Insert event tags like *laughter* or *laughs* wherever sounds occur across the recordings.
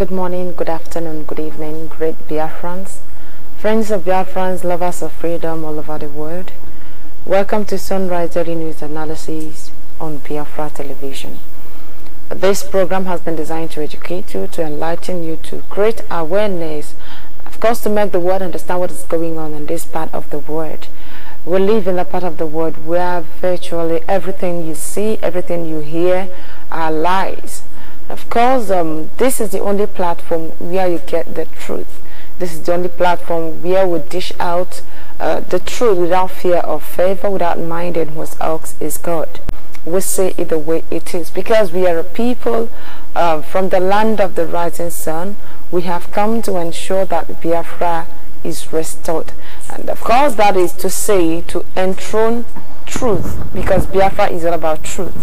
Good morning, good afternoon, good evening, great Biafrans, friends of Biafrans, lovers of freedom all over the world. Welcome to Sunrise Daily News Analysis on Biafra Television. This program has been designed to educate you, to enlighten you, to create awareness, of course, to make the world understand what is going on in this part of the world. We live in a part of the world where virtually everything you see, everything you hear are lies of course, um, this is the only platform where you get the truth. This is the only platform where we dish out uh, the truth without fear of favor, without minding whose else is God. We say it the way it is because we are a people uh, from the land of the rising sun. We have come to ensure that Biafra is restored. And of course, that is to say to enthrone truth, because Biafra is all about truth.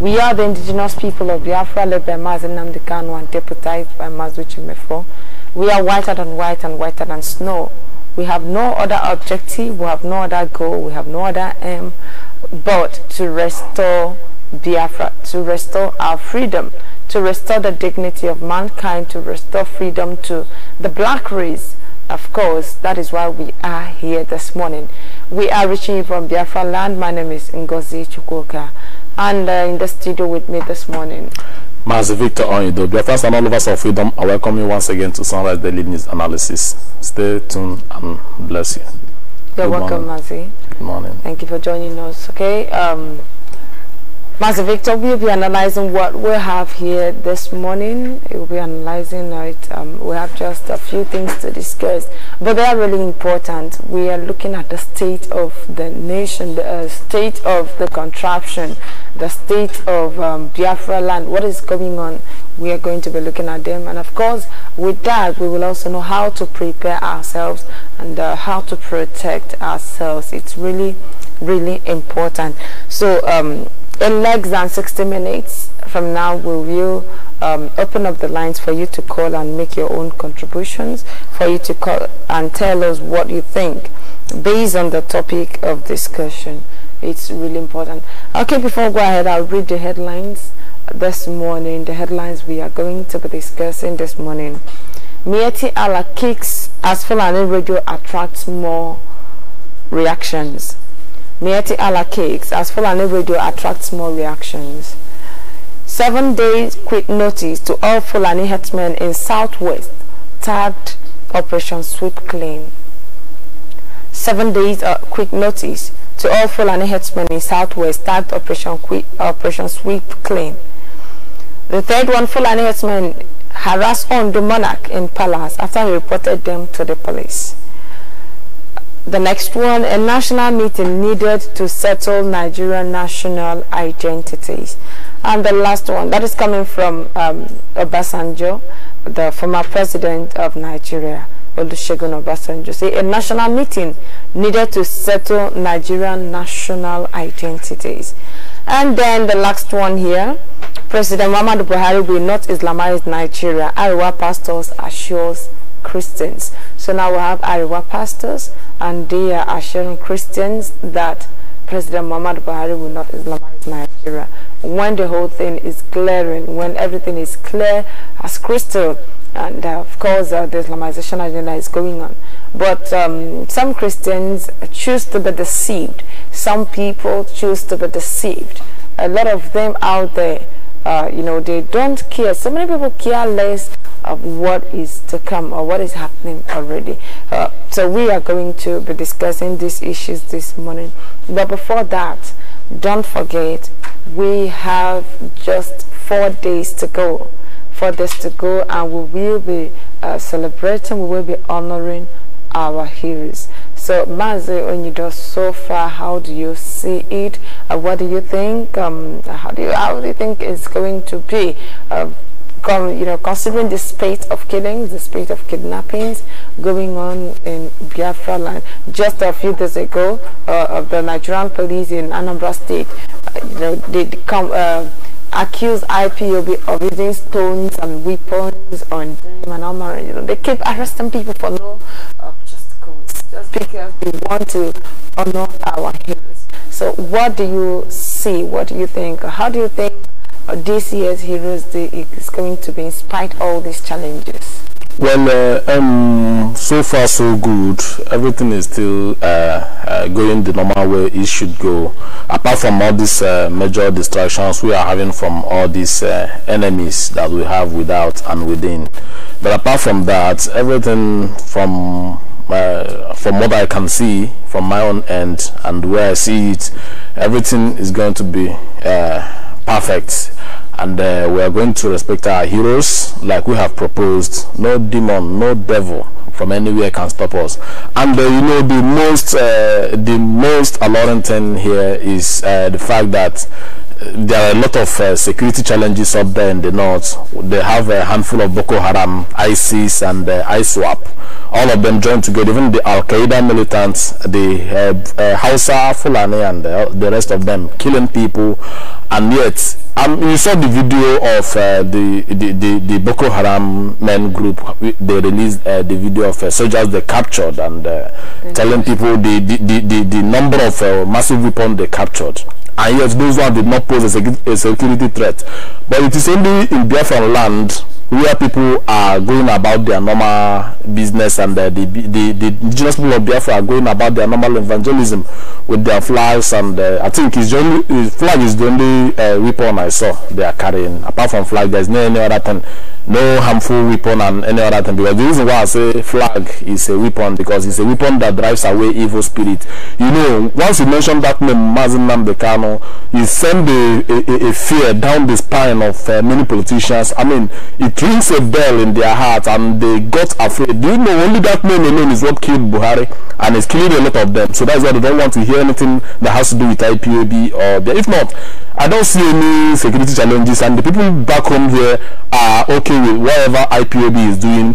We are the indigenous people of Biafra, led by Mazen Namdekanu and deputized by Mazuchi Mefo. We are whiter than white and whiter than snow. We have no other objective, we have no other goal, we have no other aim but to restore Biafra, to restore our freedom, to restore the dignity of mankind, to restore freedom to the black race of course, that is why we are here this morning. We are reaching you from Biafra land. My name is Ngozi Chukwuka. And uh, in the studio with me this morning. Master Victor Onido, Biafras and all of us of freedom, I welcome you once again to Sunrise Daily News Analysis. Stay tuned and bless you. You're Good welcome, Mazi. Good morning. Thank you for joining us. Okay. Um, Master Victor we will be analyzing what we have here this morning. we will be analyzing it. Um, we have just a few things to discuss, but they are really important. We are looking at the state of the nation, the uh, state of the contraption, the state of um, Biafra land, what is going on. We are going to be looking at them. And of course, with that, we will also know how to prepare ourselves and uh, how to protect ourselves. It's really, really important. So, um, in less than 60 minutes from now we will um, open up the lines for you to call and make your own contributions for you to call and tell us what you think based on the topic of discussion it's really important okay before I go ahead i'll read the headlines this morning the headlines we are going to be discussing this morning Mieti Ala kicks as Fulani radio attracts more reactions Mieti la Cakes as Fulani Radio attracts more reactions. Seven days quick notice to all Fulani headmen in Southwest tagged Operation Sweep Clean. Seven days uh, quick notice to all Fulani headsmen in Southwest tagged Operation, quick, Operation Sweep Clean. The third one, Fulani headsmen harassed on the monarch in palace after he reported them to the police. The next one, a national meeting needed to settle Nigerian national identities. And the last one, that is coming from um, Obasanjo, the former president of Nigeria, Olusegun Obasanjo. Say a national meeting needed to settle Nigerian national identities. And then the last one here, President Muhammadu Buhari will not Islamize Nigeria. Iowa pastors assures Christians. So now we have Ariwa pastors and they are assuring Christians that President Muhammad Buhari will not Islamize Nigeria. When the whole thing is clearing, when everything is clear as crystal, and uh, of course uh, the Islamization agenda is going on. But um, some Christians choose to be deceived. Some people choose to be deceived. A lot of them out there uh, you know they don't care so many people care less of what is to come or what is happening already uh, so we are going to be discussing these issues this morning but before that don't forget we have just four days to go four days to go and we will be uh, celebrating we will be honoring our heroes so Mazi Onyido, so far, how do you see it? Uh, what do you think? Um, how do you how do you think it's going to be? Uh, you know, considering the spate of killings, the spate of kidnappings going on in Biafra land. Just a few days ago, uh, of the Nigerian police in Anambra State, uh, you know, they, come uh, accuse IPOB of using stones and weapons on them and You know, they keep arresting people for no uh, just because we want to honor our heroes. So what do you see? What do you think? How do you think this year's Heroes Day is going to be in spite all these challenges? Well, uh, um, so far so good. Everything is still uh, uh, going the normal way it should go. Apart from all these uh, major distractions we are having from all these uh, enemies that we have without and within. But apart from that, everything from uh, from what I can see from my own end and where I see it, everything is going to be uh, perfect. And uh, we are going to respect our heroes like we have proposed. No demon, no devil from anywhere can stop us. And uh, you know the most, uh, the most alarming thing here is the fact that there are a lot of uh, security challenges up there in the north. They have a handful of Boko Haram, ISIS, and uh, ISWAP all of them joined together, even the Al Qaeda militants, the uh, uh, Hausa, Fulani, and the, the, rest of them, killing people. And yet, um, you saw the video of uh, the, the, the, the, Boko Haram men group. They released uh, the video of uh, soldiers they captured and uh, mm-hmm. telling people the, the, the, the, number of massive weapons they captured and yet those ones did not pose a, security threat. But it is only in Biafran land where people are going about their normal business and the, the, the, the indigenous people of Biafra are going about their normal evangelism with their flags and uh, I think only, his flag is the only uh, weapon I saw they are carrying. Apart from flag, there's no any other thing no harmful weapon and any other thing because the reason why i say flag is a weapon because it's a weapon that drives away evil spirit you know once you mention that name mazin Namdekano, you send a, a, a, fear down the spine of uh, many politicians i mean it rings a bell in their heart and they got afraid do you know only that name alone is what killed buhari and it's killing a lot of them so that's why they don't want to hear anything that has to do with ipab or if not I don't see any security challenges, and the people back home here are okay with whatever IPOB is doing,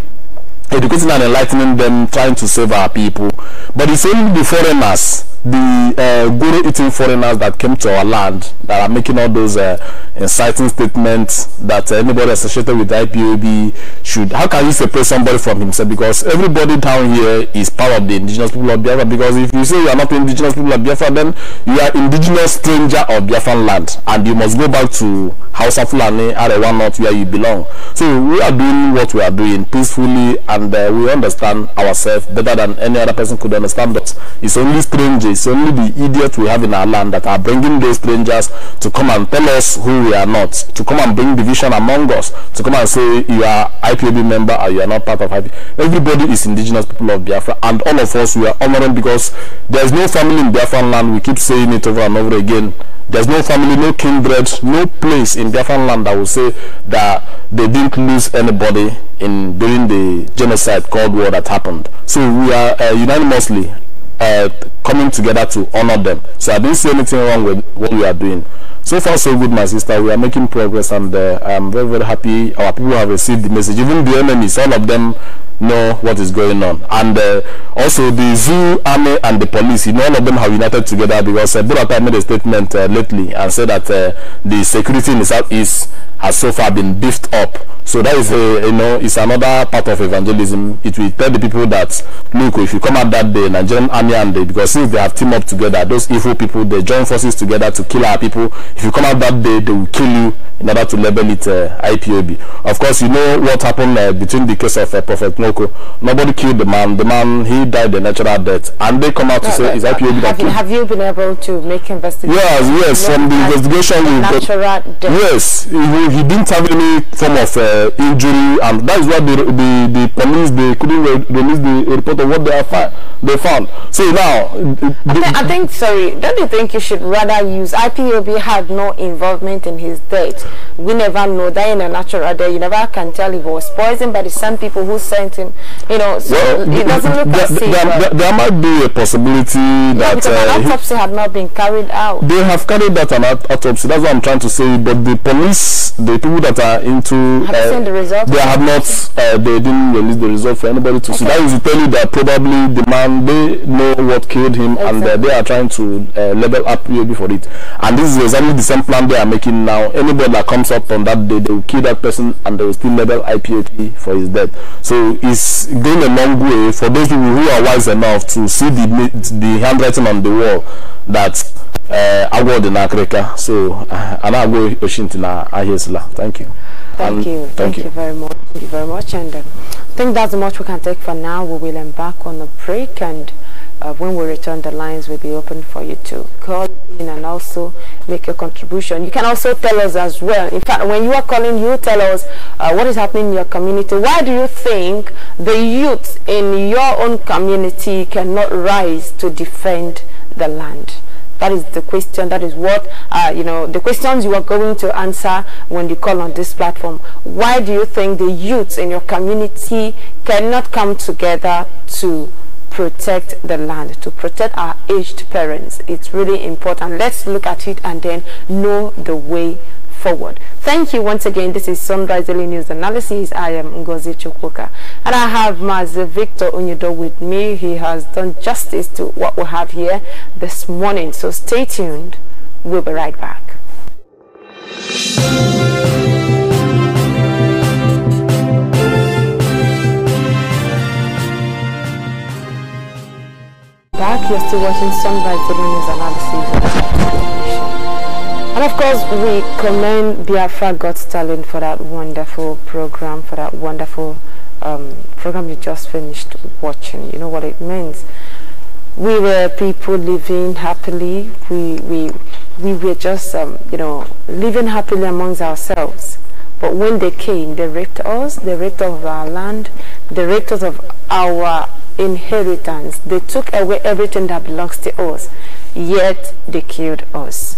educating and enlightening them, trying to save our people. But it's only the foreigners, the uh, guru eating foreigners that came to our land that are making all those uh, inciting statements that anybody associated with IPOB should. How can you separate somebody from himself? Because everybody down here is part of the indigenous people of Biafra. Because if you say you are not indigenous people of Biafra, then you are indigenous stranger of Biafran land, and you must go back to House of Fulani, one North, where you belong. So we are doing what we are doing peacefully, and uh, we understand ourselves better than any other person could understand us. It's only strangers, it's only the idiots we have in our land that are bringing those strangers to come and tell us who we are not, to come and bring division among us, to come and say you are IPOB member or you are not part of IPOB. Everybody is indigenous people of Biafra and all of us we are honoring because there is no family in Biafran land. We keep saying it over and over again. There's no family, no kindred, no place in Biafran land that will say that they didn't lose anybody in during the genocide Cold War that happened. So we are uh, unanimously uh, coming together to honor them. So I didn't see anything wrong with what we are doing. So far, so good, my sister. We are making progress, and uh, I'm very, very happy. Our people have received the message. Even the enemies, all of them know what is going on. And uh, also the zoo, army, and the police, you know, all of them have united together because uh, Burata made a statement uh, lately and said that uh, the security in the southeast has so far been beefed up. So that is, a, uh, you know, it's another part of evangelism. It will tell the people that, look, if you come out that day, Nigerian army and they, because since they have teamed up together, those evil people, they join forces together to kill our people. If you come out that day, they will kill you in order to label it uh, IPOB. Of course, you know what happened uh, between the case of Prophet Noah Nobody killed the man. The man, he died a natural death. And they come out no, to say, it's IPOB that killed. Have you been able to make investigations? Yes, yes. From the investigation, we natural death. Yes. He, he, didn't have any form of uh, injury. And that is why the, the, the police, they couldn't re release the report of what they have found they found. See now, I, th I, think. Sorry, don't you think you should rather use IPOB had no involvement in his death? We never know that in a natural day. You never can tell if he was poisoned by the same people who sent him. You know, so well, it doesn't look like as there, there, there, might be a possibility yeah, that uh, autopsy had not been carried out. They have carried out an autopsy. That's what I'm trying to say. But the police, the people that are into, have uh, seen the result. They have not. Uh, they didn't release the result for anybody to okay. see. That is to tell you that probably the man and they know what killed him exactly. and uh, they are trying to uh, level up UAB for it. And this is exactly the same plan they are making now. Anybody that comes up on that day, they will kill that person and they will still level IPAP for his death. So it's going a long way for those people who are wise enough to see the, the handwriting on the wall that uh, go to n'akịrịka so uh, a na-agwọ I na ahịa thank you Thank um, you. Thank, thank you. you. very much. Thank you very much. And um, I think that's much we can take for now. We will embark on a break and uh, when we return the lines will be open for you to call in and also make your contribution you can also tell us as well in fact when you are calling you tell us uh, what is happening in your community why do you think the youth in your own community cannot rise to defend the land that is the question. That is what, uh, you know, the questions you are going to answer when you call on this platform. Why do you think the youths in your community cannot come together to protect the land, to protect our aged parents? It's really important. Let's look at it and then know the way forward. Thank you once again. This is Sunrise Daily News Analysis. I am Ngozi Chukwuka. And I have Master Victor Onyedo with me. He has done justice to what we have here this morning. So stay tuned. We'll be right back. Back, you're still watching Sunrise Daily News Analysis. And of course, we commend Biafra Got Talent for that wonderful program, for that wonderful um, program you just finished watching. You know what it means. We were people living happily. We we we were just um, you know living happily amongst ourselves. But when they came, they raped us. They raped us of our land. They raped us of our inheritance. They took away everything that belongs to us. Yet they killed us.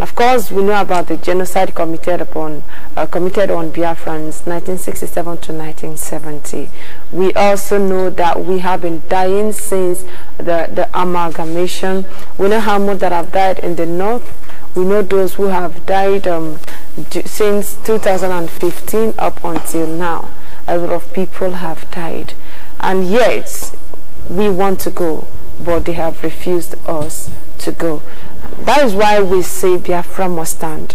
Of course, we know about the genocide committed upon uh, committed on Biafrans 1967 to 1970. We also know that we have been dying since the, the amalgamation. We know how many that have died in the north. We know those who have died um, since 2015 up until now. A lot of people have died. And yet, we want to go, but they have refused us to go. That is why we say Biafra must stand.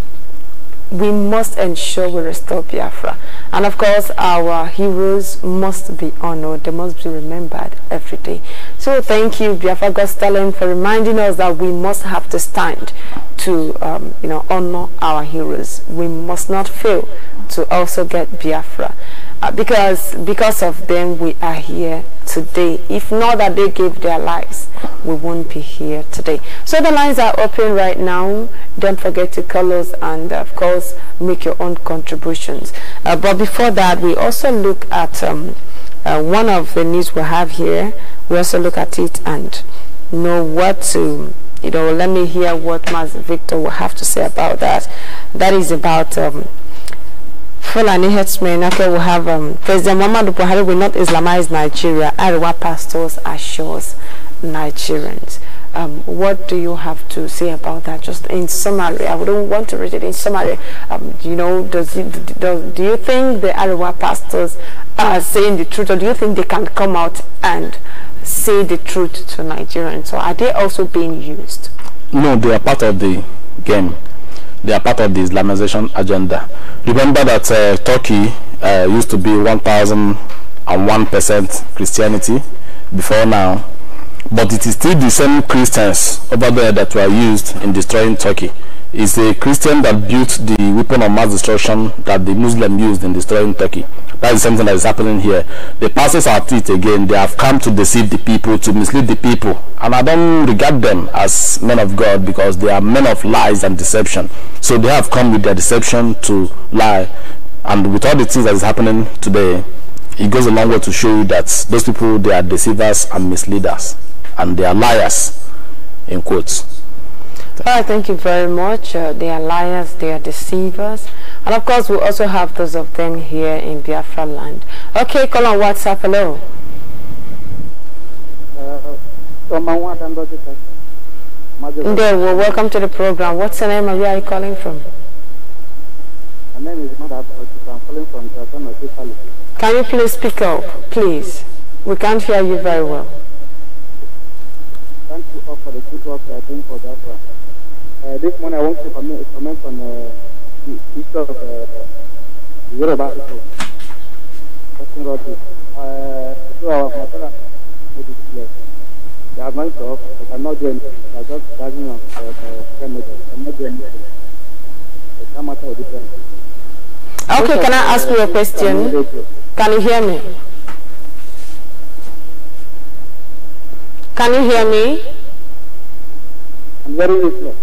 We must ensure we restore Biafra. And of course, our heroes must be honored. They must be remembered every day. So thank you, Biafra God's talent, for reminding us that we must have to stand to um, you know honor our heroes. We must not fail to also get Biafra. Uh, because because of them we are here today if not that they gave their lives we won't be here today so the lines are open right now don't forget to call us and of course make your own contributions uh, but before that we also look at um, uh, one of the news we have here we also look at it and know what to you know let me hear what Mas Victor will have to say about that that is about um, Fulani headsmen okay, we have um, President Muhammadu Buhari will not Islamize Nigeria. Ariwa pastors assures Nigerians. Um, what do you have to say about that? Just in summary, I wouldn't want to read it in summary. Um, you know, does it, do you think the Ariwa pastors are saying the truth, or do you think they can come out and say the truth to Nigerians? So are they also being used? No, they are part of the game. They are part of the Islamization agenda. Remember that uh, Turkey uh, used to be 1,001% Christianity before now, but it is still the same Christians over there that were used in destroying Turkey is a Christian that built the weapon of mass destruction that the Muslim used in destroying Turkey. That is something that is happening here. The pastors are at it again. They have come to deceive the people, to mislead the people. And I don't regard them as men of God because they are men of lies and deception. So they have come with their deception to lie. And with all the things that is happening today, it goes a long way to show you that those people, they are deceivers and misleaders. And they are liars, in quotes. Well, thank you very much. Uh, they are liars, they are deceivers. And of course, we also have those of them here in Biafra land. Okay, call on WhatsApp. Hello. well, welcome to the program. What's your name where are you calling from? My name is Mother I'm calling from Can you please speak up, please? We can't hear you very well. Thank you all for the good work you are doing for that Uh, this one I want to comment, comment on uh, the issue of uh, Yoruba people. Talking about this. Uh, so our father made it They are going to off, they cannot do anything. They are just dragging on uh, uh, the remedy. They cannot do anything. They can't matter with different. Okay, can I ask you a question? Can you hear me? Can you hear me? I'm very useless.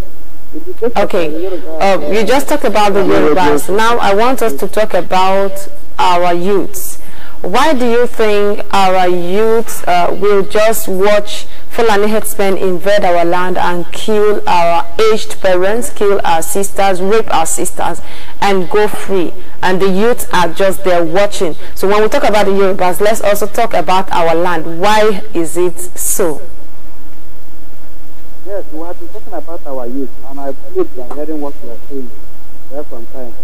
Okay, uh, you just talked about the Yorubas. Now I want us to talk about our youths. Why do you think our youths uh, will just watch Fulani headsmen invade our land and kill our aged parents, kill our sisters, rape our sisters, and go free? And the youths are just there watching. So when we talk about the Yorubas, let's also talk about our land. Why is it so? Yes, we have been talking about our youth, and I believe they hearing what we are saying there from time.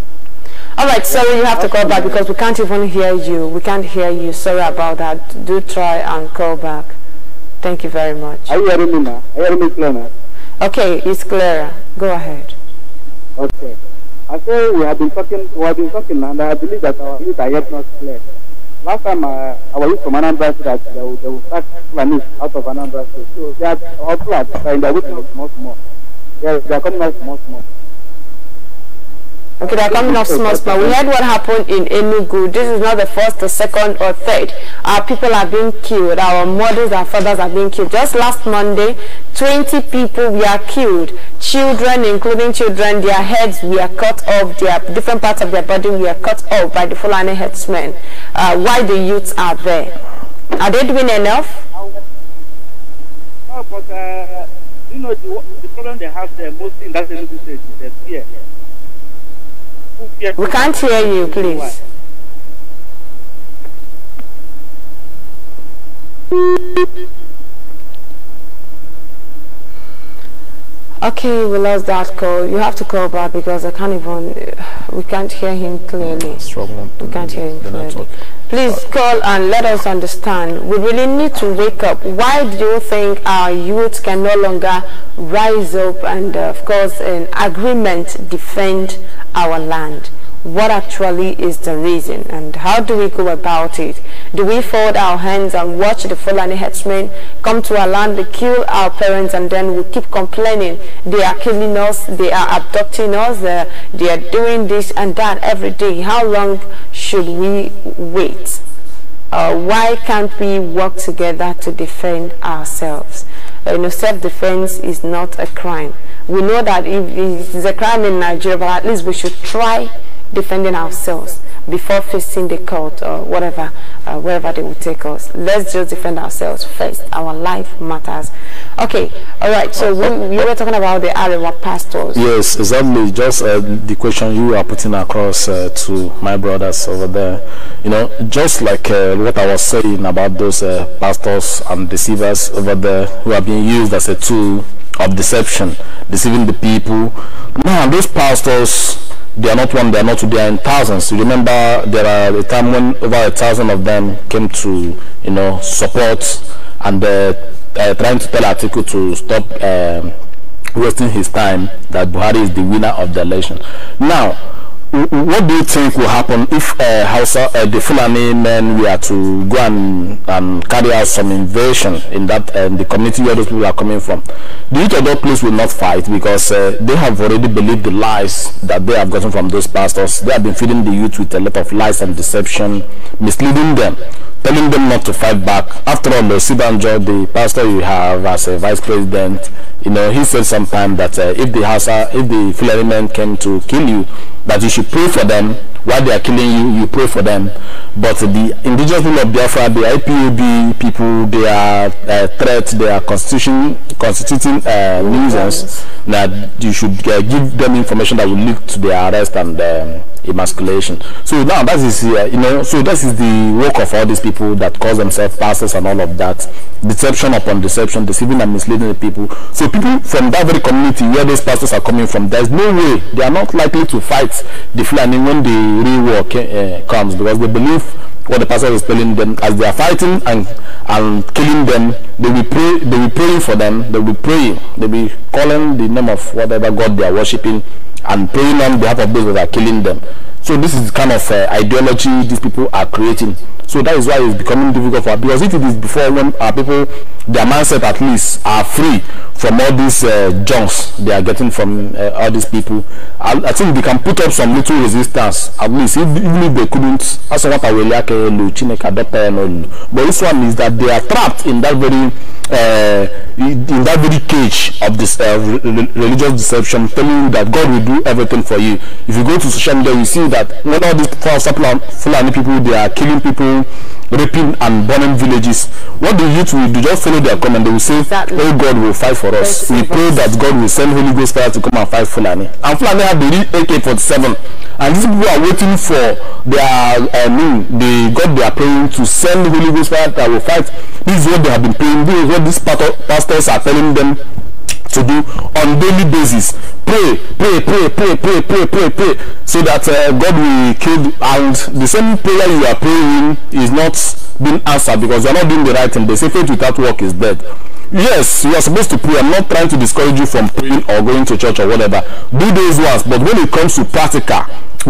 All right, sorry, you have to call back because we can't even hear you. We can't hear you. Sorry about that. Do try and call back. Thank you very much. Are you hearing me now? Are you hearing me clear now? Okay, it's clearer. Go ahead. Okay. I say we have been talking, we have been talking, and I believe that our youth are yet not clear last time uh, our youth from Anambra said that they will, they will start Fulani out of Anambra State. So they are all plans, they are in their way small, small. They they are coming out small, small. Okay, they're coming off small, but We heard what happened in Enugu. This is not the first, the second, or third. Our people are being killed. Our mothers our fathers are being killed. Just last Monday, 20 people were killed. Children, including children, their heads were cut off. Their different parts of their body were cut off by the Fulani headsmen. Uh, why the youths are there? Are they doing enough? No, but uh, you know the, the, problem they have there mostly in that state is fear. We can't hear you, please. Okay, we lost that call. You have to call back because I can't even, we can't hear him clearly. Struggling we can't hear him clearly. Please call and let us understand. We really need to wake up. Why do you think our youth can no longer rise up and, uh, of course, in agreement, defend our land? what actually is the reason and how do we go about it? Do we fold our hands and watch the Fulani headsmen come to our land, they kill our parents and then we keep complaining they are killing us, they are abducting us, uh, they are doing this and that every day. How long should we wait? Uh, why can't we work together to defend ourselves? Uh, you know, self-defense is not a crime. We know that it is a crime in Nigeria, but at least we should try defending ourselves before facing the court or whatever, uh, wherever they will take us. Let's just defend ourselves first. Our life matters. Okay, all right. So we, you were talking about the Arewa pastors. Yes, exactly. Just uh, the question you are putting across uh, to my brothers over there. You know, just like uh, what I was saying about those uh, pastors and deceivers over there who are being used as a tool of deception, deceiving the people. Now, those pastors, they are not one, they are not two, they are in thousands. You remember there are a time when over a thousand of them came to, you know, support and uh, uh trying to tell Atiku to stop uh, wasting his time that Buhari is the winner of the election. Now, what do you think will happen if uh, Hausa, uh, the Fulani men were to go and, and carry out some invasion in that uh, the community where those people are coming from? The Itodo police will not fight because uh, they have already believed the lies that they have gotten from those pastors. They have been feeding the youth with a lot of lies and deception, misleading them, telling them not to fight back. After all, the Sibanjo, the pastor you have as a vice president, you know, he said sometime that uh, if the Hausa, if the Fulani men came to kill you, that you should pray for them. While they are killing you, you pray for them. But the indigenous people of Biafra, the IPUB people, they are uh, threat, they are constitution, constituting uh, nuisance. you should uh, give them information that will lead to their arrest and um, emasculation. So now that is, uh, you know, so that is the work of all these people that call themselves pastors and all of that. Deception upon deception, deceiving and misleading the people. So people from that very community where these pastors are coming from, there's no way they are not likely to fight the Fulani when the real uh, comes because they believe what the pastor is telling them as they are fighting and and killing them they will pray they will praying for them they will pray they will calling the name of whatever god they are worshiping and praying on behalf of those that are killing them so this is kind of uh, ideology these people are creating so that is why it's becoming difficult for us because if it is before when our people their mindset at least are free from all these uh, junks they are getting from uh, all these people I, I, think they can put up some little resistance at least if, even if they couldn't that's what I will like uh, but this one is that they are trapped in that very uh, in that very cage of this uh, religious deception telling you that God will do everything for you if you go to social media you see that when all these false Fulani people they are killing people raping and burning villages, what the youth will do, just follow their command. They will say, exactly. oh God will fight for us. we pray us. that God will send Holy Ghost fire to come and fight Fulani. And Fulani have the AK-47. And these people are waiting for their, I mean, they God they are praying to send Holy Ghost fire that will fight. This is what they have been praying. This is what these pastors are telling them to do on daily basis. Pray, pray, pray, pray, pray, pray, pray, pray, so that uh, God will kill. And the same prayer you are praying is not being answered because you are not doing the right thing. They say faith without work is dead. Yes, you are supposed to pray. I'm not trying to discourage you from praying or going to church or whatever. Do those ones, but when it comes to practical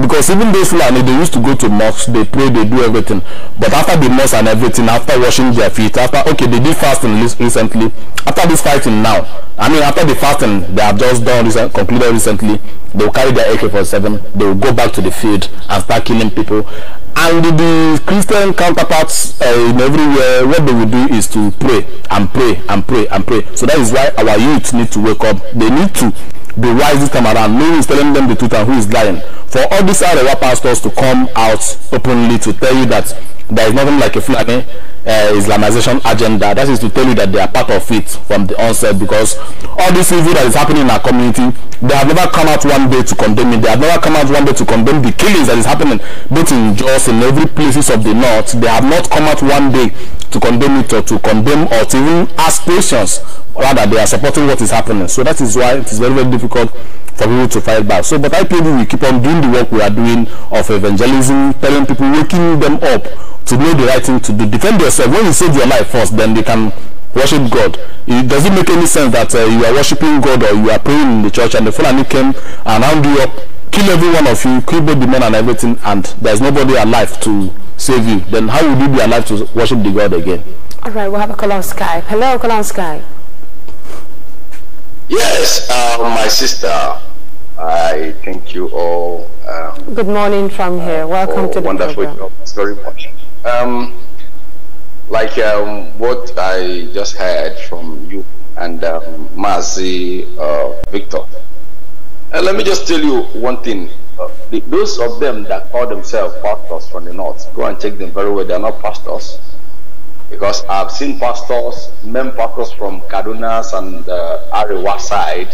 because even those Fulani, they used to go to mosques, they pray, they do everything. But after the mosque and everything, after washing their feet, after, okay, they did fasting recently. After this fighting now, I mean, after the fasting they have just done, recent, concluded recently, they will carry their AK-47, they will go back to the field and start killing people. And the, the Christian counterparts uh, in everywhere, what they will do is to pray and pray and pray and pray. So that is why our youth need to wake up. They need to the wise this around. No is telling them the truth and who is lying. For all these other pastors to come out openly to tell you that there is nothing like a Fulani uh, Islamization agenda. That is to tell you that they are part of it from the onset because all this evil that is happening in our community, they have never come out one day to condemn it. They have never come out one day to condemn the killings that is happening both in Jos and every places of the north. They have not come out one day to condemn it or to condemn or to even ask questions. Rather, they are supporting what is happening. So that is why it is very, very difficult for people to fight back. So, but IPOB will keep on doing the work we are doing of evangelism, telling people, waking them up to know the right thing to do. Defend yourself. When you save your life first, then they can worship God. It doesn't make any sense that uh, you are worshiping God or you are praying in the church and the Fulani came and round you up, kill every one of you, kill both the men and everything, and there's nobody alive to save you. Then how will you be alive to worship the God again? All right, we'll have a call on Skype. Hello, call on Skype. Yes, uh, my sister, I thank you all. Um, Good morning from here. Uh, Welcome to the wonderful program. Job. very much. Um, like um, what I just heard from you and um, Mazi uh, Victor. Uh, let me just tell you one thing. Uh, the, those of them that call themselves pastors from the north, go and check them very well. They are not pastors. Because I've seen pastors, men pastors from Kaduna and uh, Arewa side,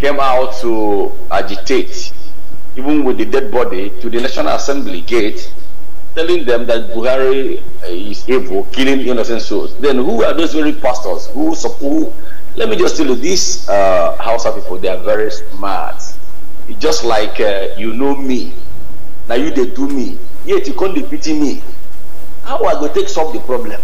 came out to agitate, even with the dead body, to the National Assembly gate telling them that Buhari eh, is evil, killing innocent souls, then who are those very pastors who support? Let me just tell you, these uh, Hausa people, they are very smart. It's just like uh, you know me, now you they do me, yet you can't pity me. How I going take solve the problem?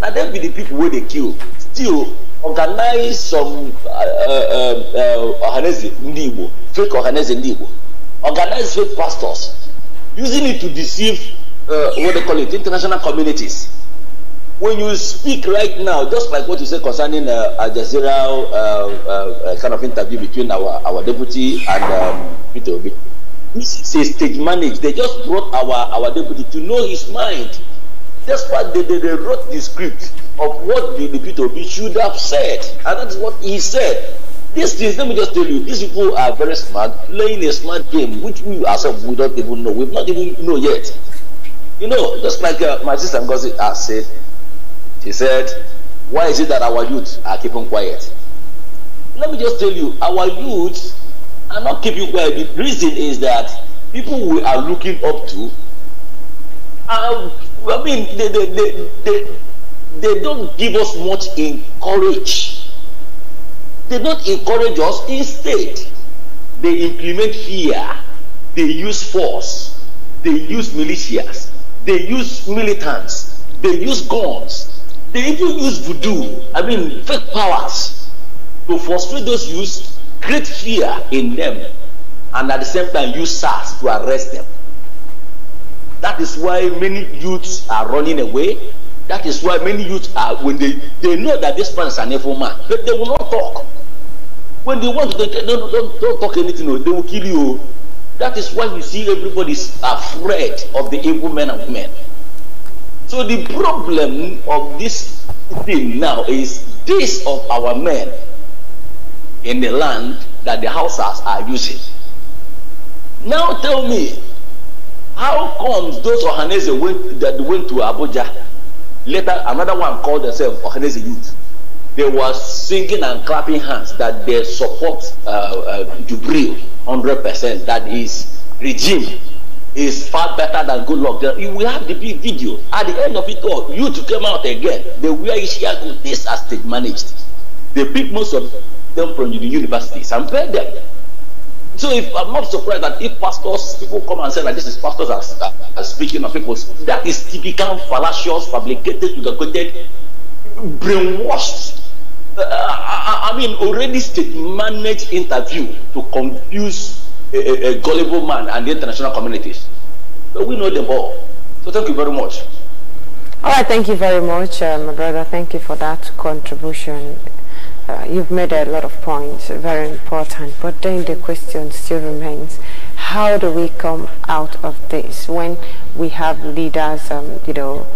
Now them be the people where they kill. Still organize some uh, uh, uh, organize fake organize organize fake pastors using it to deceive uh, what they call it, international communities. When you speak right now, just like what you said concerning uh, Al Jazeera uh, uh, uh kind of interview between our, our deputy and um, Peter Obi, this is stage managed. They just brought our, our deputy to know his mind. That's why they, they, they wrote the script of what the, the Peter Obi should have said. And that's what he said. These things, let me just tell you, these people are very smart, playing a smart game, which we ourselves we don't even know. We've not even know yet. You know, just like uh, my sister Ngozi has ah, said, she said, why is it that our youth are keeping quiet? Let me just tell you, our youth are not keeping quiet. The reason is that people we are looking up to, are, I mean, they, they, they, they, they don't give us much encouragement. They do not encourage us. Instead, they implement fear. They use force. They use militias. They use militants. They use guns. They even use voodoo. I mean, fake powers to frustrate those youths, create fear in them, and at the same time use SARS to arrest them. That is why many youths are running away. That is why many youths are when they, they know that this man is an evil man, but they will not talk. When they want to, they, don't, don't, don't talk anything, they will kill you. That is why you see everybody is afraid of the evil men and women. So the problem of this thing now is this of our men in the land that the houses are using. Now tell me, how comes those Ohanese went, that went to Abuja? Later, another one called themselves Ohanese youth they were singing and clapping hands that they support uh, uh, Jubril 100%, that his regime is far better than good luck. We have the big video. At the end of it all, you to come out again. way he's Ishiago. This has state managed. They pick most of them from the universities and pay them. So if I'm not surprised that if pastors, people come and say that this is pastors are, are, are speaking of people, that is typical fallacious, fabricated, educated, brainwashed uh, I, I mean, already state managed interview to confuse a, a, a gullible man and the international communities. But we know them all. So thank you very much. All right, thank you very much, uh, my brother. Thank you for that contribution. Uh, you've made a lot of points, very important. But then the question still remains, how do we come out of this when we have leaders, um, you know,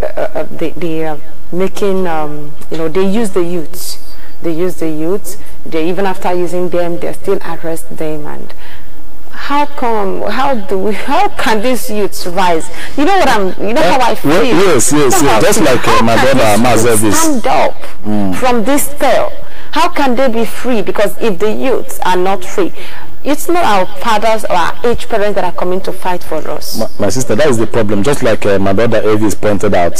uh, uh the, the uh, making, um, you know, they use the youths. They use the youths. They, even after using them, they still arrest them. And how come, how do we, *laughs* how can these youths rise? You know what I'm, you know uh, how I feel? yes, yes, you know yes. Just like uh, my brother Mazebis. Stand up mm. from this spell. How can they be free? Because if the youths are not free, it's not our fathers or our age parents that are coming to fight for us. My, my sister, that is the problem. Just like uh, my brother Elvis pointed out,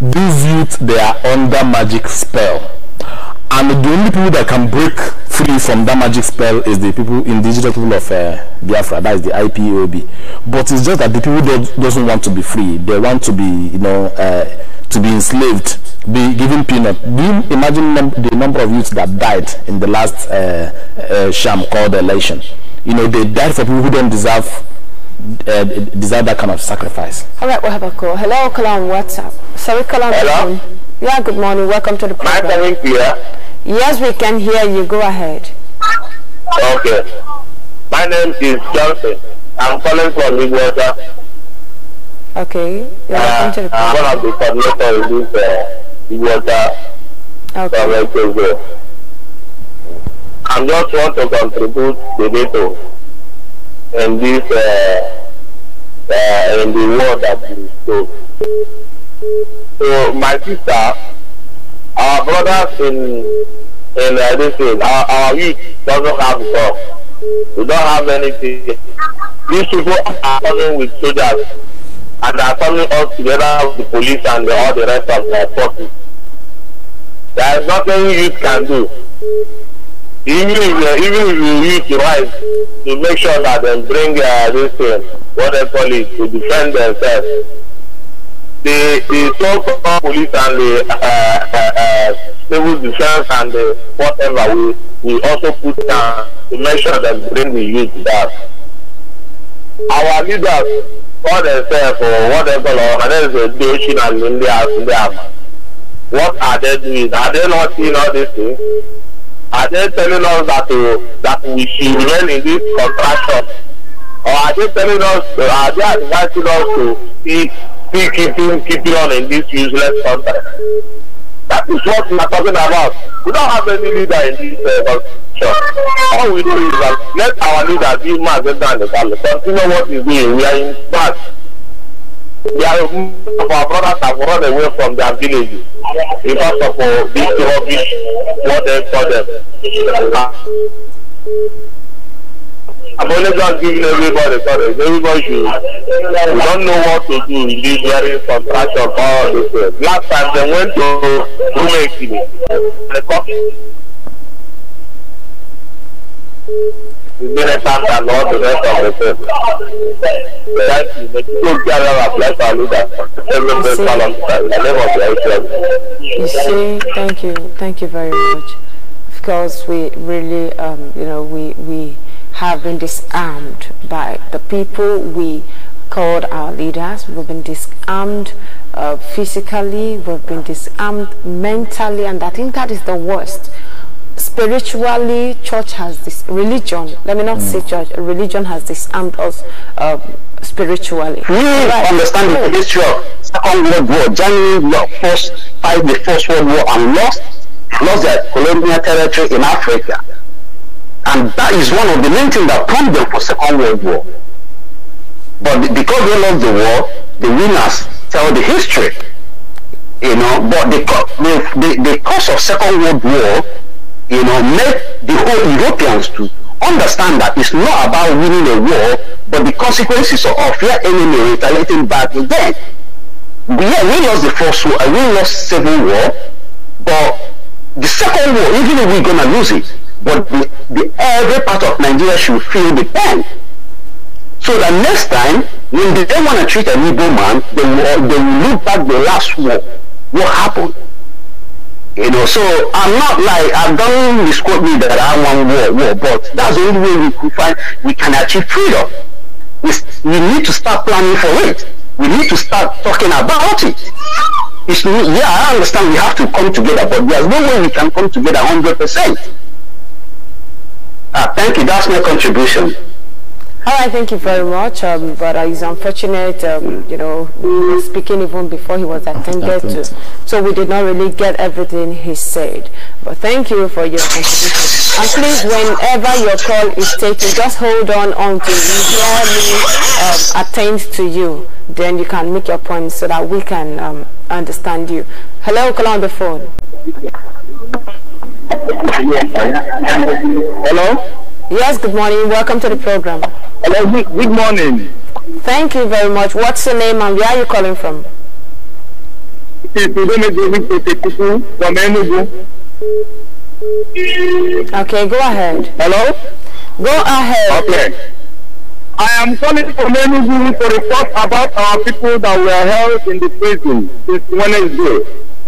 these youth, they are under magic spell. And the only people that can break free from that magic spell is the people, indigenous people of uh, Biafra, that is the IPOB. But it's just that the people don't, doesn't want to be free. They want to be, you know, uh, to be enslaved be given peanut. Do you imagine num the number of youths that died in the last uh, uh, sham called election? You know, they died for people who don't deserve uh, deserve that kind of sacrifice. All right, we'll have a call. Hello, Kalam, what's up? Sorry, Kalam. Hello? Yeah, good morning. Welcome to the program. Am I coming Yes, we can hear you. Go ahead. Okay. My name is Johnson. I'm calling from Midwestern. Okay. You're uh, to the uh, I'm one of the coordinators of this uh, water okay. directors there. I just want to contribute the and this uh, uh, in the world that we spoke. So my sister, our brothers in in uh, this field, our, our youth doesn't have stuff. We don't have anything. These people are coming with soldiers and are coming us together with the police and the, all the rest of the forces. There is nothing you can do. Even if, uh, even if you use the to make sure that they bring uh, this thing, what they call it, to defend themselves. The, the so-called police and the uh, uh, uh civil defense and the whatever, we, we also put down to make sure that bring the youth back. Our leaders for themselves whatever, or, and then they do, and they are, what are they doing? Are they not seeing all these things? Are they telling us that uh, that we should remain in this contraction? Or are they telling us, uh, are they advising us to keep, keep, keep keep on in this useless contract? That is what we are talking about. We don't have any leader in this uh, sure. All we do is that let our leader be Mazenda and the continue what he's doing. We are in fact their our brothers have run away from their villages because of uh, this rubbish what they saw them. I'm only just giving everybody sorry, everybody should we don't know what to do in this very contraction for all this. Uh, last time they went to Rumekini, the coffee. we may thank the Lord the rest of the people. may and bless our leaders every of the name of You see, thank you, thank you very much. Because we really, um, you know, we, we have been disarmed by the people we called our leaders. We've been disarmed uh, physically, we've been disarmed mentally, and I think that is the worst spiritually church has this religion let me not mm. say church religion has disarmed us um, spiritually we right. understand the history second world war germany first fight the first world war and lost lost their colonial territory in africa and that is one of the main things that prompted them for second world war but because they lost the war the winners tell the history you know but the, the, the, the cause of second world war you know, make the whole Europeans to understand that it's not about winning a war, but the consequences of your enemy retaliating back with them. Yeah, we lost the first war, and we lost civil war, but the second war, even if we're gonna lose it, but the, the, every part of Nigeria should feel the pain. So that next time, when they want to treat an evil man, they will, they will look back the last war. What happened? You know, so I'm not like I don't misquote me that I want war, war, but that's the only way we can find we can achieve freedom. We, we need to start planning for it. We need to start talking about it. It's, yeah, I understand we have to come together, but there's no way we can come together 100%. Ah, thank you. That's my contribution. All oh, right, thank you very much. Um, but uh, it's unfortunate, um, you know, we were speaking even before he was attended to. So we did not really get everything he said. But thank you for your contribution. And please, whenever your call is taken, just hold on until you hear me um, attend to you. Then you can make your point so that we can um, understand you. Hello, call on the phone. Hello? Yes, good morning. Welcome to the program. Hello, good, good morning. Thank you very much. What's your name and where are you calling from? Okay, go ahead. Hello? Go ahead. Okay. I am calling from Enugu to report about our people that were held in the prison this Wednesday.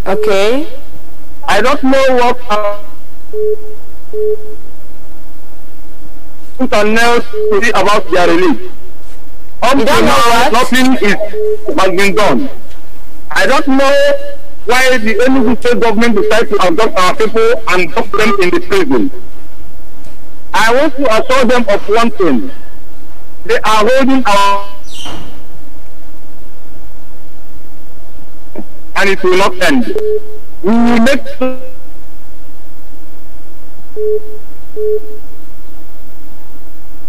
Okay. I don't know what put a nail to about their release. Up to now, nothing is, has been done. I don't know why the Enugu state government decided to abduct our people and drop them in the prison. I want to assure them of one thing. They are holding our and it will not end. We will make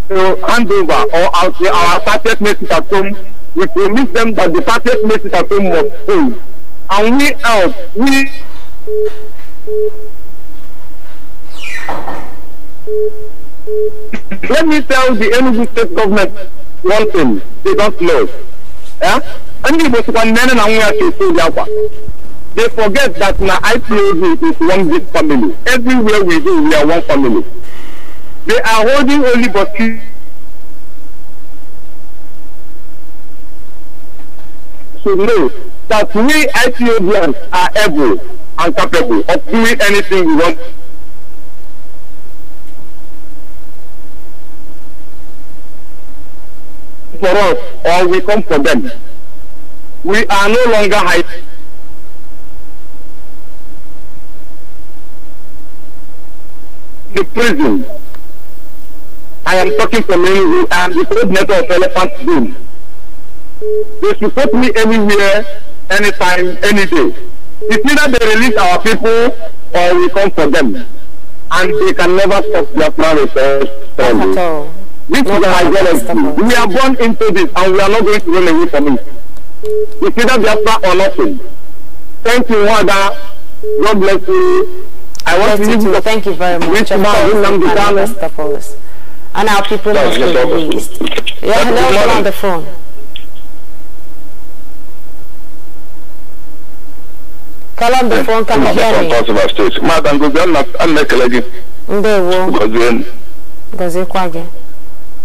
to hand over or our, our apartheid message at home, we promise them that the apartheid message at home must fail. And we out, we *coughs* let me tell the Enugu state government one thing, they don't know. Yeah? Ndị Igbo sịkwa men and nwa to do ya work. They forget that I IPOB is one big family. Everywhere we go, we are one family. They are holding only Burkina to know that we Ethiopians are able and capable of doing anything we want. For us, or we come for them. We are no longer high. The prison I am talking to me, I am the coordinator of Elephant Boom. They should put me anywhere, anytime, any day. It's either they release our people or we come for them. And they can never stop their plan with us. This is our We are born into this and we are not going to run away from it. It's either Biafra or nothing. Thank you, Wada. God bless you. I want That's to you. Thank you very much. Thank you, Mr and our people must be released. Yeah, hello, on the phone. Call eh, on the phone, can you hear me? Madam, I'm not going to ndewo gọziekwa gị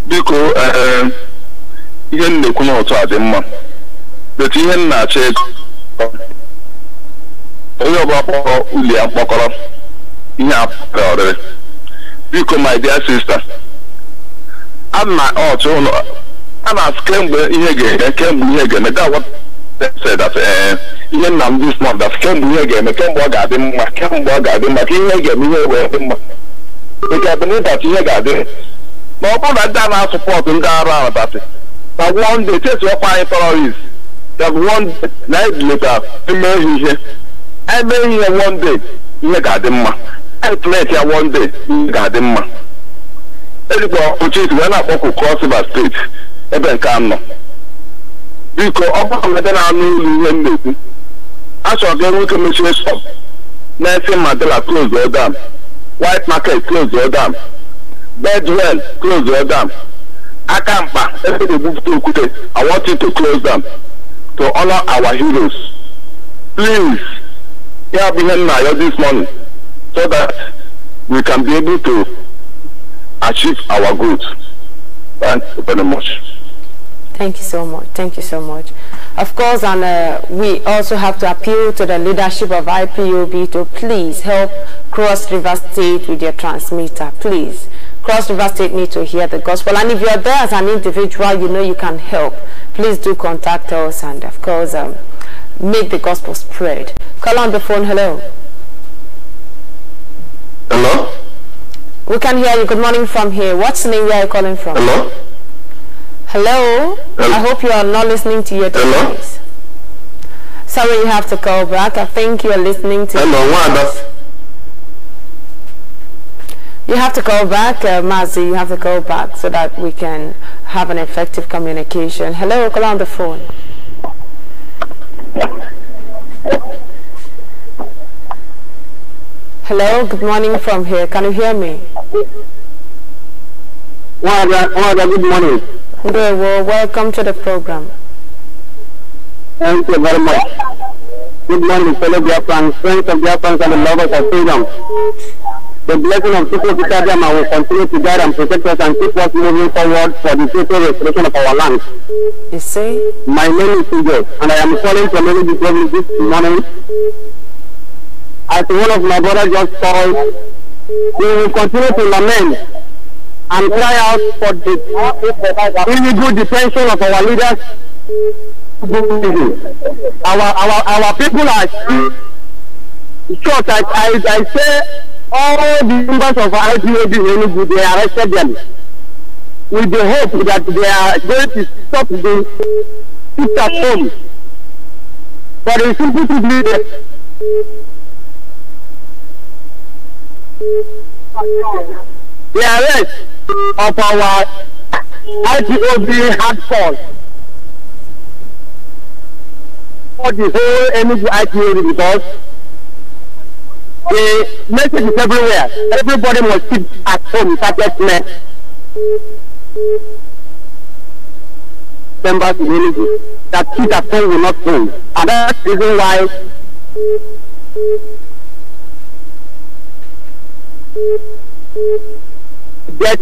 biko eh, ihe m na-ekwu n'otu a dị mma etu ihe m na-achọ ego onye ọbụla kpọrọ uli ya mkpọkọrọ ihe a pụtara ọrịrị biko my dear sister a na-asị kemgbe ihe ga-eme kemgbe ihe ga-eme eh, ihe nna m dis month dat kemgbe ihe ga-eme kemgbe ọ ga-adị mma kemgbe ọ ga-adị mma ka ihe ga-eme ihe wee dị mma nke bụ n'ụbọchị ihe ga-adị ma ọ bụrụ na ndị a na-asụpọtụ ndị arụ abatị na wonde chesi ọkwa anyị terọrist na anyị dileta eme ihe eme ihe wọnde ihe ga-adị mma anyị e pleti ya wọnde ihe ga-adị mma ejikwa ochie wee na-akpọkụ cross steeti ebe nke anọ biko ọ bụrụ na ebe na-anụ ụlọ ihe m na-ekwu achọrọ ka enwe ike mechie shop Nelson Mandela close all dam White Market close all dam dam aka mkpa ebe e na-egbupụta okwute I to close dam to honor our heroes please ya bụ ihe m na-ayọ this morning so that we can be able to achieve our goals. very much. Thank you so much. Thank you so much. Of course, and uh, we also have to appeal to the leadership of IPOB to please help Cross River State with your transmitter, please. Cross River State need to hear the gospel. And if you're there as an individual, you know you can help. Please do contact us and, of course, um, make the gospel spread. Call on the phone. Hello. Hello. We can hear you. Good morning from here. What's the name where are you calling from? Hello? Hello? Hello? I hope you are not listening to your Hello? Device. Sorry, you have to call back. I think you are listening to... Hello, what you have to call back, uh, Mazi, you have to call back so that we can have an effective communication. Hello, call on the phone. Hello, good morning from here. Can you hear me? good morning. Okay. well, welcome to the program. Thank you very much. Good morning, fellow Biafrans, friends of Biafrans and the lovers of freedom. The blessing of Super Kitadiama will continue to guide and protect us and keep us moving forward for the total restoration of our land. You see? My name is Ugo, and I am calling from Elizabeth this morning as one of my brothers just it. we will continue to lament and cry out for the illegal detention of our leaders. Our our our people are short. I I, I say all the members of IPOB Enugu they arrested them with the hope that they are going to stop the sit at home. But the simple truth is the arrest of our ITOB hard for the whole Enugu ITOB because the message is everywhere. Everybody must keep at home without men. Members in Enugu that keep at home will not home. And that's the reason why get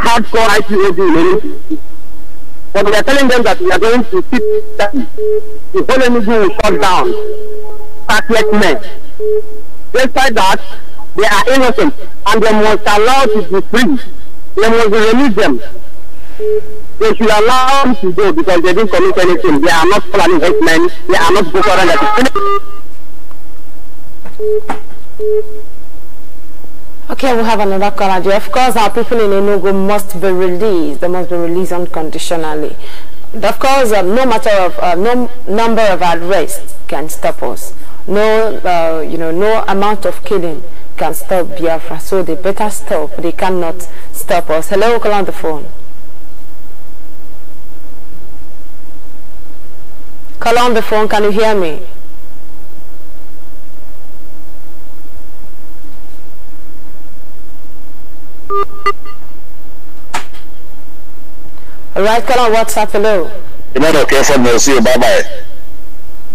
hardcore IPOB But we are telling them that we are going to keep that the whole energy will shut down. Startless men. Despite that, they are innocent and they must allow to be free. They must release them. They should allow them to go because they didn't commit anything. They are not planning hate men. They are not Boko Haram. Okay, we have another caller. Of course, our people in Enugu must be released. They must be released unconditionally. Of course, uh, no matter of uh, no number of arrests can stop us. No, uh, you know, no amount of killing can stop Biafra. So they better stop. They cannot stop us. Hello, call on the phone. Call on the phone. Can you hear me? Right, call on WhatsApp, hello. You might not care for me, see you, bye-bye.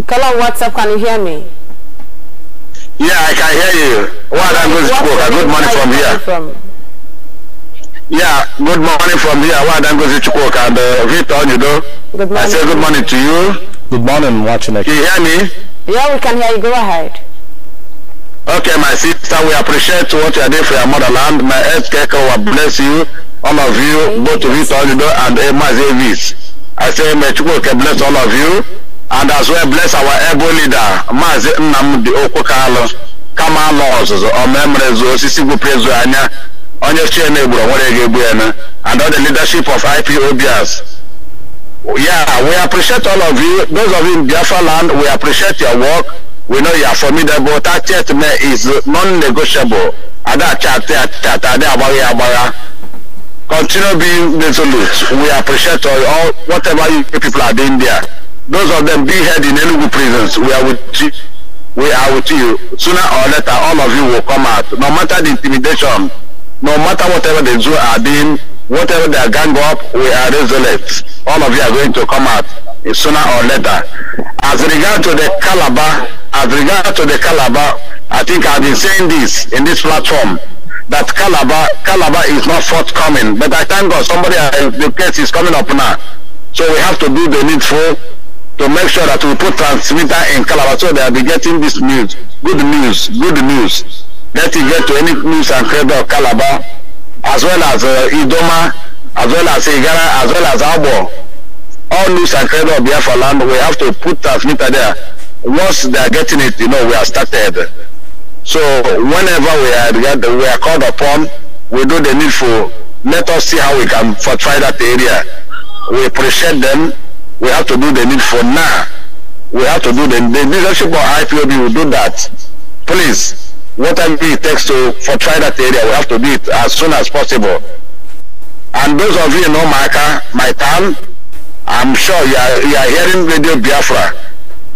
Call on WhatsApp, can you hear me? Yeah, I can hear you. What language spoke? I Good morning from here. From? Yeah, good morning from here. What language spoke? And uh, Victor, you know. Good morning. I say good morning to you. Good morning, watching it. You hear me? Yeah, we can hear you. Go ahead. Okay, my sister, we appreciate what you are doing for your motherland. My ex-kecker will bless you. all of you, both of you, Tolido and Emma Davis. I say, may Chukwuke bless all of you, and as well bless our able leader, Mazi Nnamdi Okwukalo, kama ala ọzụzụ ọmemrezu osisi gwuprezu anya onye chie na-egburu nwere ga-egbu ya and all the leadership of IPOBs. Yeah, we appreciate all of you. Those of you in Biafra land, we appreciate your work. We know you are formidable. That th is non-negotiable. Ada chate chate, ada agbagha agbagha. Continue being resolute. We appreciate all, all whatever you people are doing there. Those of them being held in Enugu prisons, we are with you. We are with you. Sooner or later, all of you will come out. No matter the intimidation, no matter whatever the zoo are doing, whatever they are gang up, we are resolute. All of you are going to come out eh, sooner or later. As regard to the Calabar, as regard to the Calabar, I think I've been saying this in this platform that Calabar, Calabar is not forthcoming. But I thank God somebody, uh, the case is coming up now. So we have to do the needful to make sure that we put transmitter in Calabar so they'll be getting this news. Good news, good news. Let it get to any news and credit of Calabar, as well as uh, Idoma, as well as Igara, as well as Abo. All news and credit of Biafra land, we have to put transmitter there. Once they're getting it, you know, we are started. So whenever we are we are called upon, we do the needful. Let us see how we can fortify that area. We appreciate them. We have to do the needful now. We have to do the, the leadership of IPOB will do that. Please, whatever it takes to fortify that area, we have to do it as soon as possible. And those of you in Omaka, my town, I'm sure you are, you are hearing Radio Biafra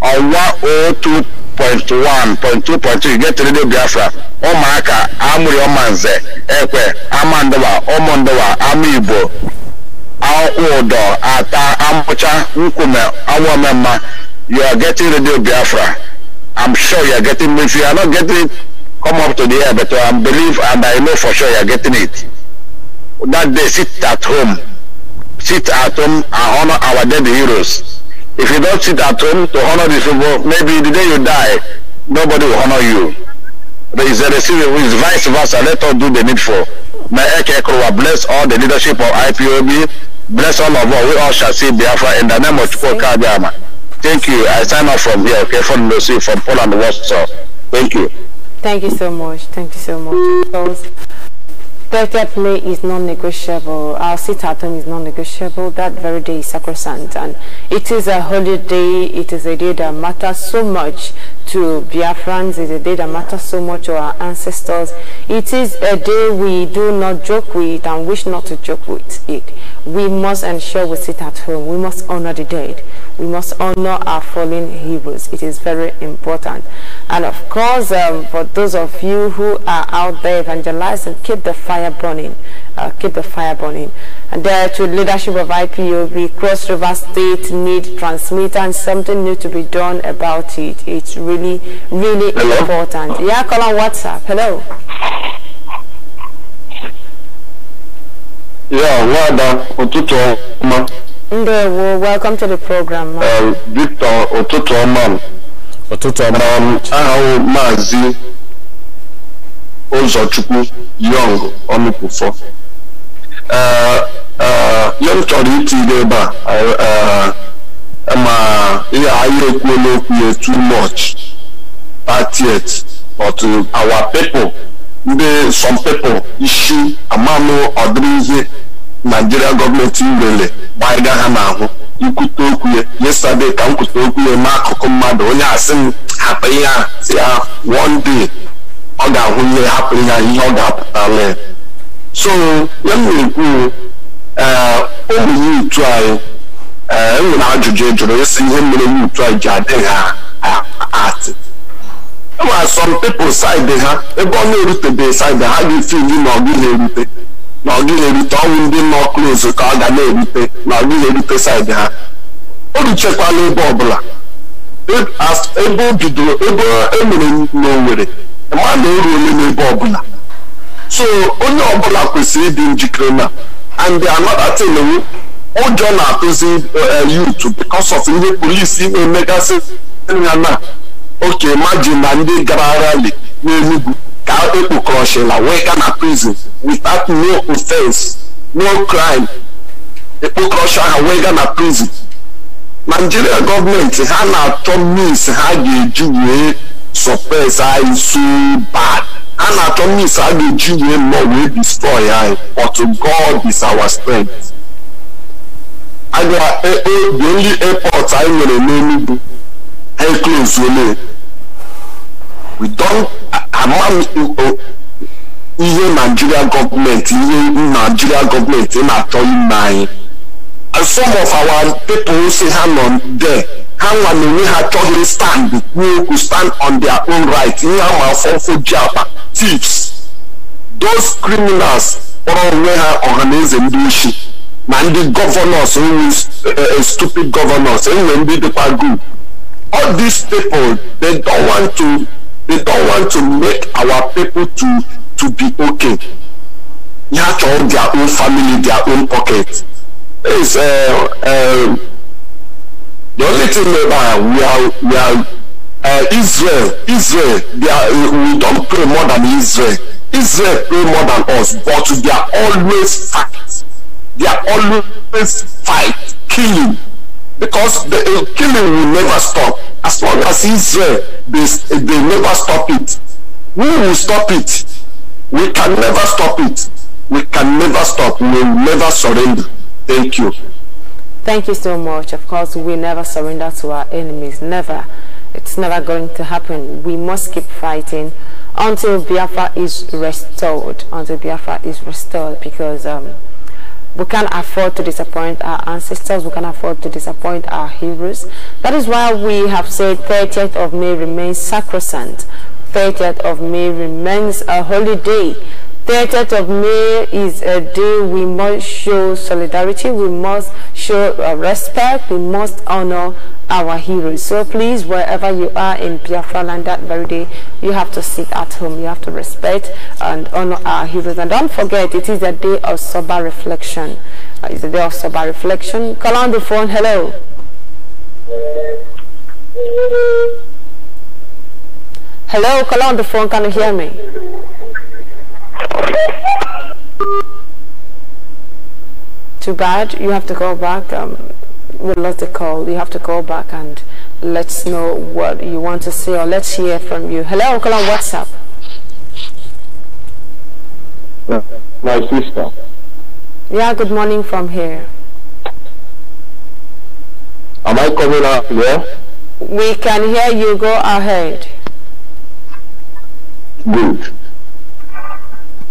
on 1023 point one point two point three get radio biafra ụmụaka amụrị ọmanze ekwe amandowa ụmụndowa ama igbo ụdọ ata amụcha nkwume awụomemma you are getting radio biafra i'm sure you are getting if you are not getting it come up to the air but i believe and i know for sure you are getting it that day sit at home sit at home and honor our dead heroes If you don't sit at home to honor these people, maybe the day you die, nobody will honor you. There is a receiver. it's vice versa. Let us do the needful. May Ekekrowa bless all the leadership of IPOB. Bless all of us. We all shall see Biafra in the name of Chukwuka Abiyama. Thank you. I sign off from here, okay, from Lucy, from Poland, Warsaw. Thank you. Thank you so much. Thank you so much. Birthday play is non-negotiable. Our sit at home is non-negotiable. That very day is sacrosanct. And it is a holy day. It is a day that matters so much to Biafrans is a day that matters so much to our ancestors. It is a day we do not joke with and wish not to joke with it. We must ensure we sit at home. We must honor the dead. We must honor our fallen heroes. It is very important. And of course, um, for those of you who are out there evangelizing, keep the fire burning. Uh, keep the fire burning. And there uh, to leadership of IPOB, Cross River State need transmitter and something new to be done about it. It's really really, really Hello? important. Yeah, call on WhatsApp. Hello. Yeah, Wada Otuto Ma. Ndewo, welcome to the program. Ma. Uh, Victor Otuto Ma. Otuto Ma. Um, Ahawo Mazi Ozochukwu Young Onukufo. Uh, uh, ihe m chọrọ itinye ebe a uh, uh, ma ihe anyị ekwuola okwu ya too much 30th but to our people ndị some people isi amanụ ọdịrị ihe naijiria gọọmenti nwere gbaiga ha n'ahụ ikwute okwu ya yesterday ka m kwute okwu ya akụkụ mmadụ onye asị m hapụ ihe a si ya one day ọ ga-ahụ ihe hapụ ihe ihe ọ ga-apụtala so ya m na-ekwu ee ogbenye utu anyị ee enwere ajụjụ jụrụ ịsị ihe mere utu anyị ji adịghị atị some people side ha ebe ọ na-erutebeghị side ha ga-efili na ọgụ na-erute na na-erute ọnwụ ndị nọ close ka ọ ga na-erute na ọgụ na-erute side ha o ruchekwala ebe ọbụla ebe o bidoro ebe emere n'Owerri ma na eruole n'ebe ọbụla so onye ọbụla kwesịrị ịdị njikere na and another thing ụjọ na-atụzi eh, youth because of ihe polisi na-emegasị ha na oke maju na ndị gara rali n'enugwu ka ekpokọrọchila wee ga na prison without no offense no crime ekpokọrọcha ha wee ga na prison naijiria gọọmenti ha na-achọ means ha ga-eji wee suppress anyị so bad ha na-achọ means ha ga-eji wee nọ wee destroy anyị but God is our strength aga e, e, the only airport anyị nwere n'enugwu and close only. We don't amount ihe oh, oh. Nigeria government, Even Nigeria government in acho ime And some of our people say ha on there, How nwa we have ha stand We okwu stand on their own right, ihe a ma afọfọ thieves. Those criminals kpọrọ onwe the ọhaneze Man, the governors ndị a uh, uh, stupid gọvanọs enwere ndị dịkwa group all these people they don't want to they don't want to make our people to to be okay have to own their own family their own pocket It's uh, um, the only thing about we are we are uh, israel israel they are, uh, we pray more than israel israel pray more than us but they are always fight they are always fight killing because the killing will never stop. As long as Israel, they, they never stop it. We will stop it. We can never stop it. We can never stop. We will never surrender. Thank you. Thank you so much. Of course, we never surrender to our enemies. Never. It's never going to happen. We must keep fighting until Biafra is restored. Until Biafra is restored because... Um, we can't afford to disappoint our ancestors we can't afford to disappoint our heroes that is why we have said 30th of may remains sacrosanct 30th of may remains a holy day 30th of May is a uh, day we must show solidarity, we must show uh, respect, we must honor our heroes. So please, wherever you are in Biafra land that very day, you have to sit at home, you have to respect and honor our heroes. And don't forget, it is a day of sober reflection. Uh, it's a day of sober reflection. Call on the phone, hello. Hello, call on the phone, can you hear me? Too bad. You have to call back. Um, we lost the call. You have to call back and let's know what you want to say or let's hear from you. Hello, call on WhatsApp. Yeah, my sister. Yeah, good morning from here. Am I coming out here? We can hear you. Go ahead. Good.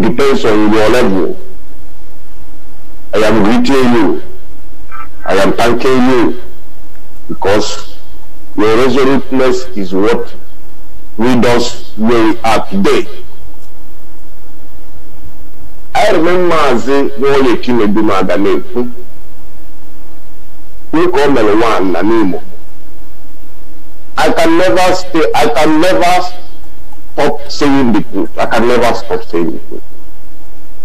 depends on your level. I am greeting you. I am thanking you because your resoluteness is what lead us where we are today. I remember Mazi Nwoyeki Meduma aga na-ekwu dịka o mere nwaanyị na n'Imo I can never stay I can never stop saying the truth. I can never stop saying the truth.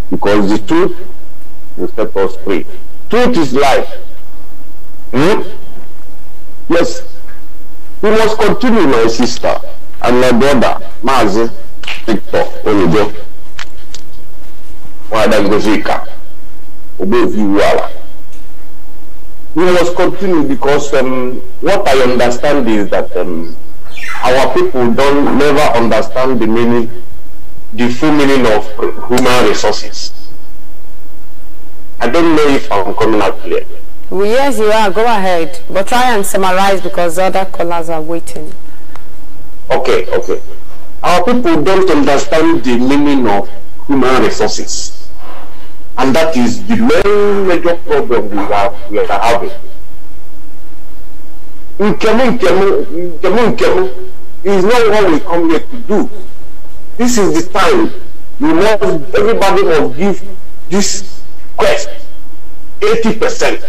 Because the truth will set us free. Truth is life. Hmm? Yes. We must continue, my sister and my brother, Mazi Victor Olujo. Wada Gozika. Obeviwala. We must continue because um, what I understand is that um, our people don't never understand the meaning, the full meaning of human resources. I don't know if I'm coming out clear. Well, yes, you are. Go ahead. But try and summarize because other callers are waiting. Okay, okay. Our people don't understand the meaning of human resources. And that is the main major problem we are, we are having. Nkemu Nkemu Nkemu Nkemu is not what we come here to do. This is the time you must everybody must give this quest 80%.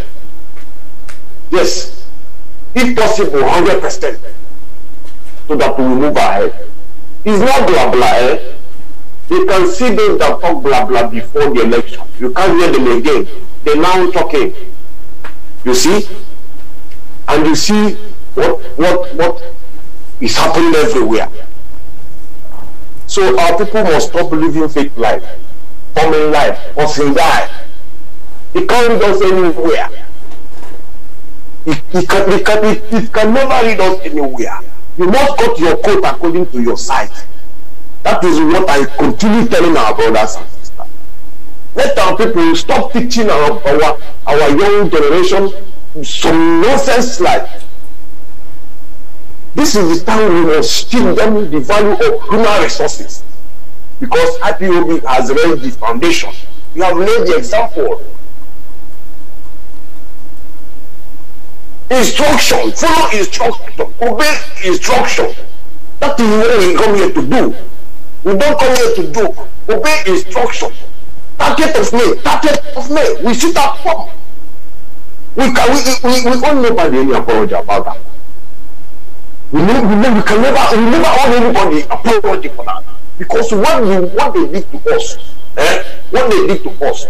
Yes. If possible, 100%. So that we move ahead. It's not blah blah. Eh? You can see those that talk blah blah before the election. You can't hear them again. They're now talking. You see? and you see what what what is happening everywhere. So our people must stop living fake life, common life, hustling life. It can't lead us anywhere. It, it, can, it, can, it, it can never lead us anywhere. You must cut your coat according to your size. That is what I continue telling our brothers and sisters. Let our people stop teaching our, our, our young generation some nonsense like this is the time we must still them the value of human resources because IPOB has laid the foundation. We have laid the example. Instruction, follow instruction, obey instruction. That is what we come here to do. We don't come here to do. Obey instruction. Target of me, target of me. We shoot at pump. We, can, we, we, we all never any apology about that. We, ne- we, ne- we can never, we never owe anybody apology for that. Because what, you, what they did to us, eh, what they did to us,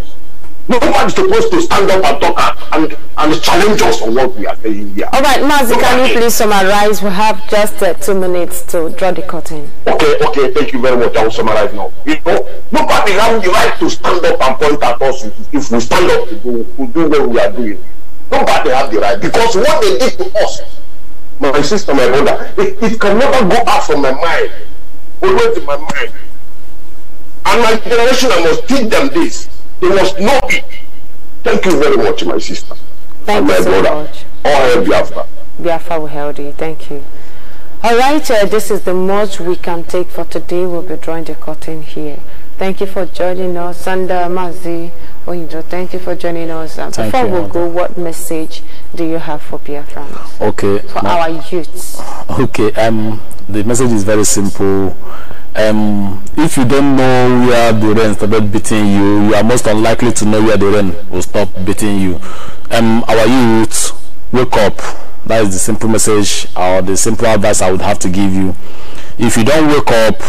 Nobody's supposed to stand up and talk and, and challenge us on what we are saying here. All right, Mazi, can you please summarize? We have just uh, two minutes to draw the curtain. Okay, okay, thank you very much. I will summarize now. You know, nobody has the right to stand up and point at us if we stand up to do, to do what we are doing. Nobody that they have the right, because what they did to us, my sister, my brother, it, it can never go out from my mind, always in my mind. And my generation, I must teach them this. They must know it. Thank you very much, my sister. Thank and my so brother. much. All Biafra. Biafra will hail you. Thank you. All right, uh, this is the most we can take for today. We'll be drawing the curtain here. Thank you for joining us. And Mazi. Oinjo, oh, thank you for joining us. Um, thank before you, we go, what message do you have for Biafrans? Okay. For our youths. Okay. Um, the message is very simple. Um, if you don't know where the rain started beating you, you are most unlikely to know where the rain will stop beating you. Um, our youth, wake up. That is the simple message or the simple advice I would have to give you. If you don't wake up,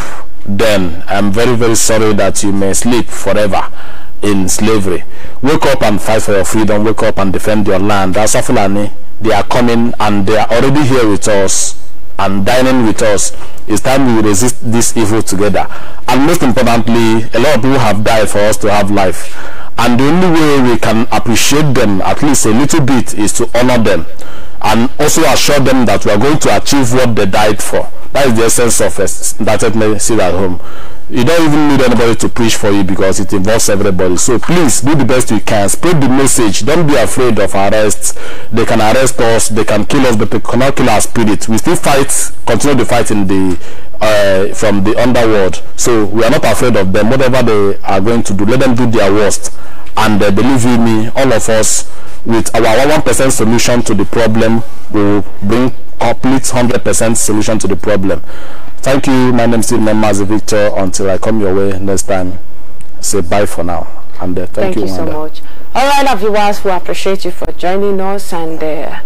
then I'm very, very sorry that you may sleep forever in slavery. Wake up and fight for your freedom. Wake up and defend your land. As Fulani, they are coming and they are already here with us and dining with us. It's time we resist this evil together. And most importantly, a lot of people have died for us to have life. And the only way we can appreciate them, at least a little bit, is to honor them and also assure them that we are going to achieve what they died for. That is the essence of us that let me sit at home you don't even need anybody to preach for you because it involves everybody so please do the best you can spread the message don't be afraid of arrests they can arrest us they can kill us but they cannot kill our spirit we still fight continue the fight in the uh, from the underworld so we are not afraid of them whatever they are going to do let them do their worst and uh, believe me all of us with our one percent solution to the problem will bring complete 100% solution to the problem Thank you. My name is Steve Mazi Victor. Until I come your way next time, say bye for now. And uh, thank, thank, you, you so much. All right, guys. we appreciate you for joining us and. Uh,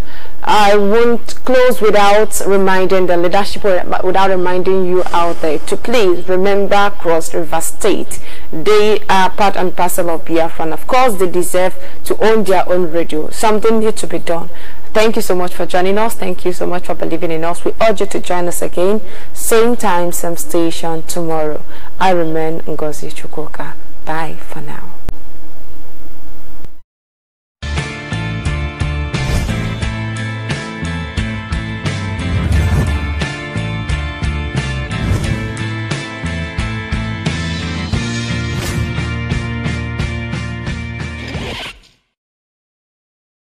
I won't close without reminding the leadership, without reminding you out there to please remember Cross River State. They are part and parcel of Biafra, and of course, they deserve to own their own radio. Something needs to be done. Thank you so much for joining us. Thank you so much for believing in us. We urge you to join us again, same time, same station tomorrow. I remain Ngozi Chukoka. Bye for now.